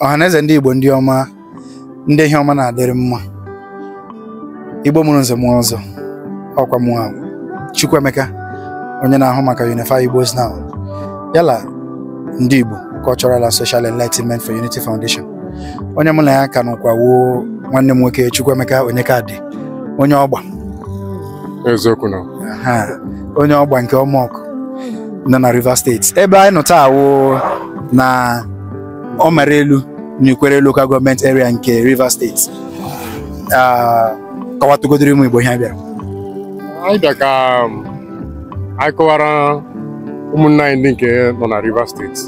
ọhaneze ndị Igbo ndị ọma ndị ihe na-adịrị mma Igbo mụrụ nze mụọ ọzọ ọkwa mụọ Chukwuemeka onye na-ahụ maka Unify Igbos Now yala ndị Igbo Cultural and Social Enlightenment for Unity Foundation onye mụ na ya ka n'ụkwa nwanne m nwoke Chukwuemeka Onyekadị onye ọgba onye ọgba nke ọmọkụ nọ na Rivers Steeti ebe anyị nọ na ọ mara elu n'ikwere lokal gọọmenti area nke Rivers steeti kọwatụgodoro ụmụ Igbo ihe bịara anyị bịa ka um, anyị kọwara ụmụnna anyị ndị nke nọ na Rivers steeti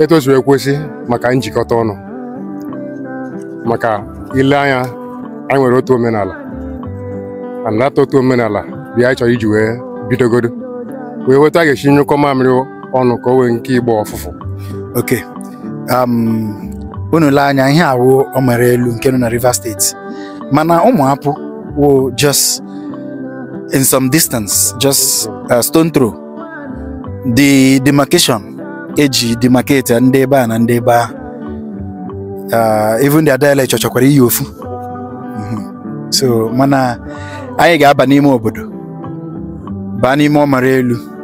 etu o si maka njikọta ọnụ maka ile anya anyị nwere otu omenala anata otu omenala bịa anyị chọrọ iji wee bidogodo wee weta a ga-esi nyụkọ mamịrị ọnụ ka o nke ọfụfụ oke um, unu lee anya ihe awụ omere elu nke nọ na Rivers State mana ụmụapụ wụ just in some distance just uh, stone throw the demarcation eji demarcate ndị ebe a na ndị ebe a uh, even their dialect chọchọkwara iyi ofu mm-hmm. so mana anyị ga-aba n'ime obodo baa n'ime ọmara elu